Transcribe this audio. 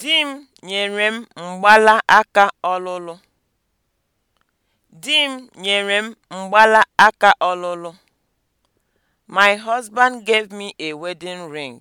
Di m nyere m aka ọlụlụ. Di m nyere m ọlụlụ. My husband gave me a wedding ring.